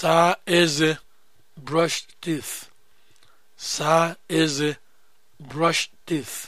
saa eze brush teeth saa eze brush teeth